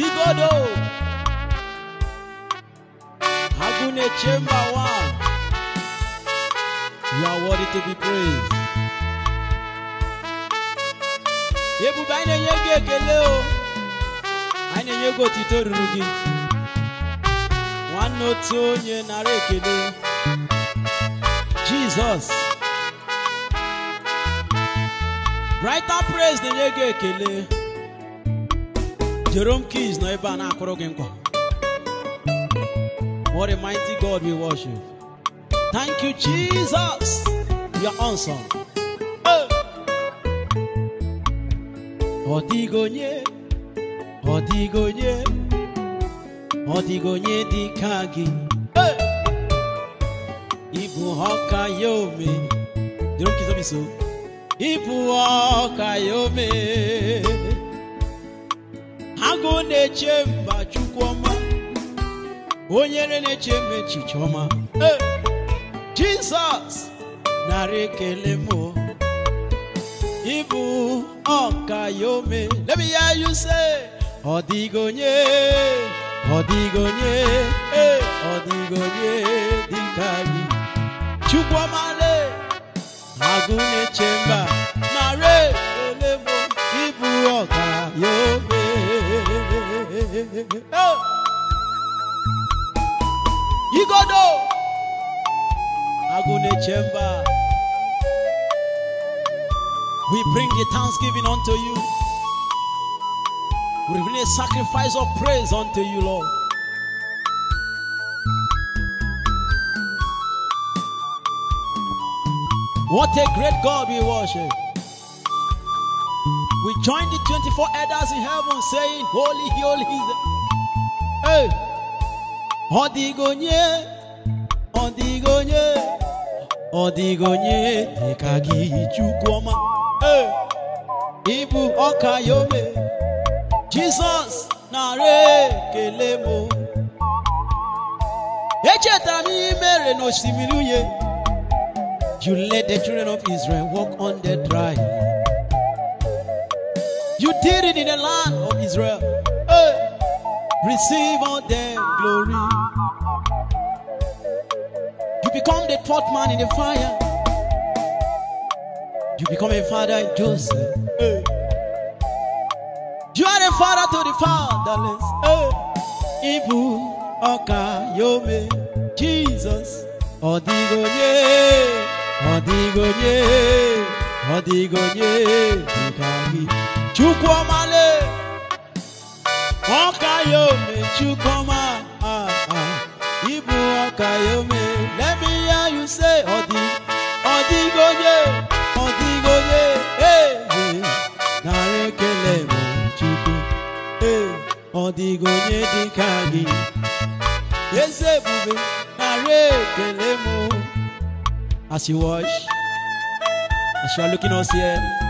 igodo Agune Chamber One. You are worthy to be praised. Ebube anyị na-enye gị ekele o anyị na-enye gị otito ruru gị nwanne otu onye nara ekele Jizọs Brighter praise na-enye gị ekele Jerome Keys no ebe na-akụrụ gị nkwa What a mighty God we worship. Thank you, Jesus. You're awesome. Ọ dịghị onye, ọ dịghị onye, ọ dịghị onye dị ka gị. Ịbụ ọka ya ome. Jerome Keys, ọ bụ so. Ịbụ agụ mba chukwuọma onye na-eche chichoma. echiche ọma jizọs narị ịbụ ọka Let me hear you say, ọ dịghị onye ọ dịghị onye ọ dịghị onye le agụ na-eche mba narị ekele ịbụ ọka ya Hey. do, Agune We bring the thanksgiving unto you. We bring a sacrifice of praise unto you, Lord. What a great God we worship. We join the 24 elders in heaven saying, Holy, holy is the... Hey! Odigonye, Odigonye, Odigonye, Tekagi Chukwoma. Hey! Ibu Okayome, Jesus, Nare Kelemo. Echetara n'ime n'osimiri unye. You let the children of Israel walk on the dry. You did it in the land of Israel. Hey. Receive all their glory. You become the fourth man in the fire. You become a father in Joseph. Hey. You are a father to the fatherless. Hey. Ibu Oka Yome Jesus Odigonye Odigonye Odigonye Chukwuomale Ọkayome Chukwuma ah, ah. Ibu Ọkayome let me hear you say Odi Odigoye Odigoye hey nara ekele mo Chukwu hey Odigoye dịka gị eze ebube nara ekele m as you watch as you are looking us here.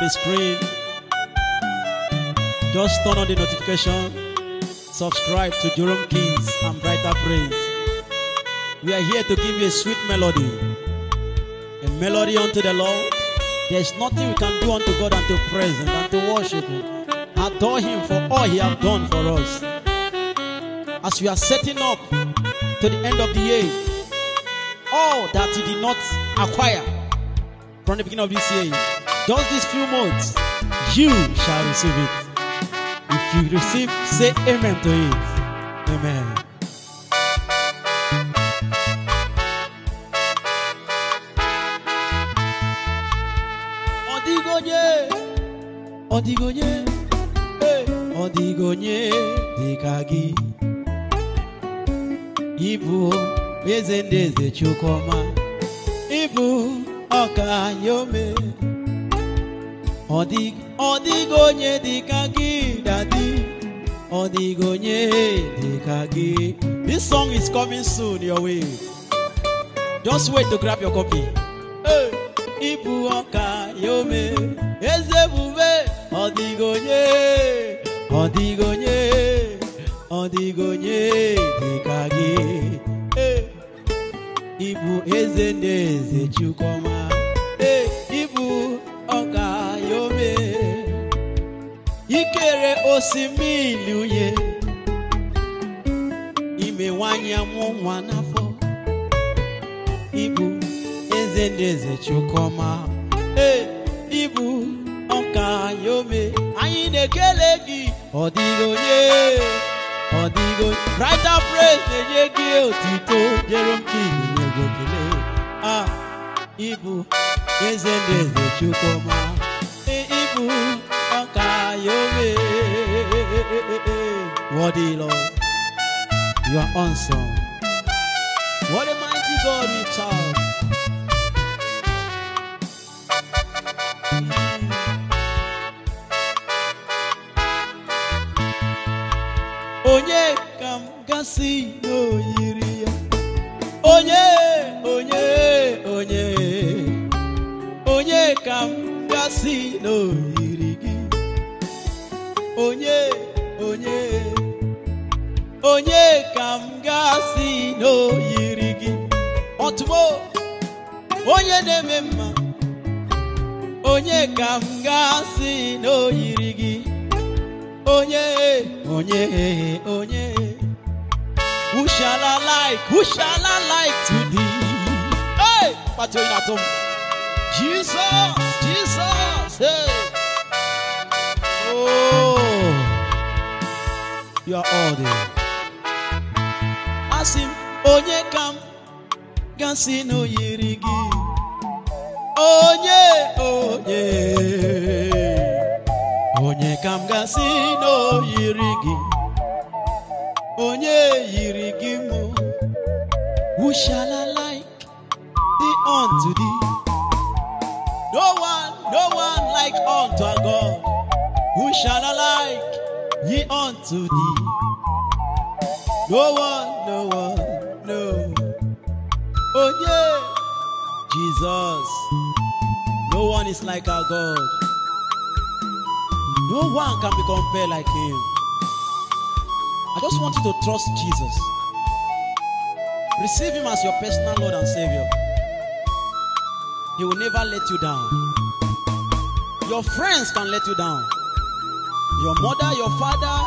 the screen. Just turn on the notification. Subscribe to Jerome Kings and Brighter praise. We are here to give you a sweet melody. A melody unto the Lord. There's nothing we can do unto God unto praise Him, unto worship Him. Adore Him for all He has done for us. As we are setting up to the end of the year, all that He did not acquire from the beginning of this year Just these few months, you shall receive it. If you receive, say amen to it. Amen. Ọdịgonye, ọdịgonye, ọdịgonye dịka gị. Ịbụ eze ndị eze Chukwuma, ịbụ ọka ya ome. ọ dịghị onye dịka gị daddy onye dịka this song is coming soon your way just wait to grab your copy ịbụ ọka ya eze ebube ọ onye ọ onye ọ onye dịka gị ịbụ eze na eze Chukwuma osimiri uye ime nwanyị amụ n'afọ ibu eze ndị eze chukwuma ibu ọka anyị ome anyị na-ekele gị ọ dịghị onye praise na-enye gị otito jerome king na-ego ah, ibu eze ndị eze body, Lord. You are awesome. What a mighty God we serve. Mm. Onye kam gasị n'oyiri ya. Onye, onye, onye. Onye kam gasị n'oyiri gị. Onye, onye. onye ka m ga-asị gị ọtụmo onye na-eme mma onye ka m ga-asị gị onye onye onye who shall I like who shall I like to thee hey pato yìí nàtó Jesus Jesus hey. oh you are all there. gasị m onye ka m gasị na o yiri gị onye onye onye ka m gasị onye yiri gị who shall I like the unto thee no one no one like unto a God who shall I like ye unto thee no one, no one, no. Oh yeah, Jesus. No one is like our God. No one can be compared like Him. I just want you to trust Jesus. Receive Him as your personal Lord and Savior. He will never let you down. Your friends can let you down. Your mother, your father,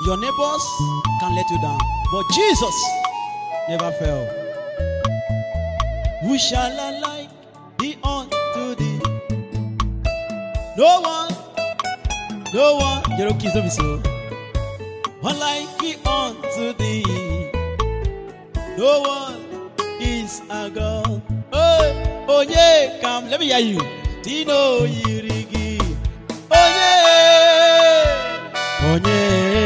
Your neighbors can let you down, but Jesus never fell. Who shall I like be unto thee? No one, no one, Jerome Keys, oh. don't be so. One like be unto thee. No one is a God. Oh, oh yeah, come, let me hear you. Tino Yirigi. Oh yeah, oh yeah.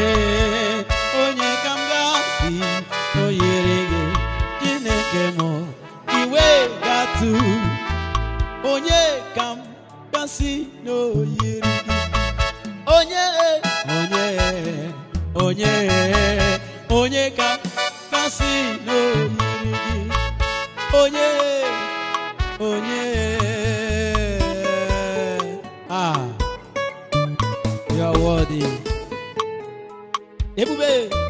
onye onye ka kasị n'oyiri gị onye onye ah you are worthy ebube